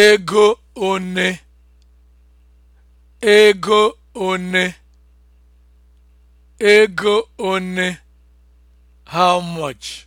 ego one ego one ego one how much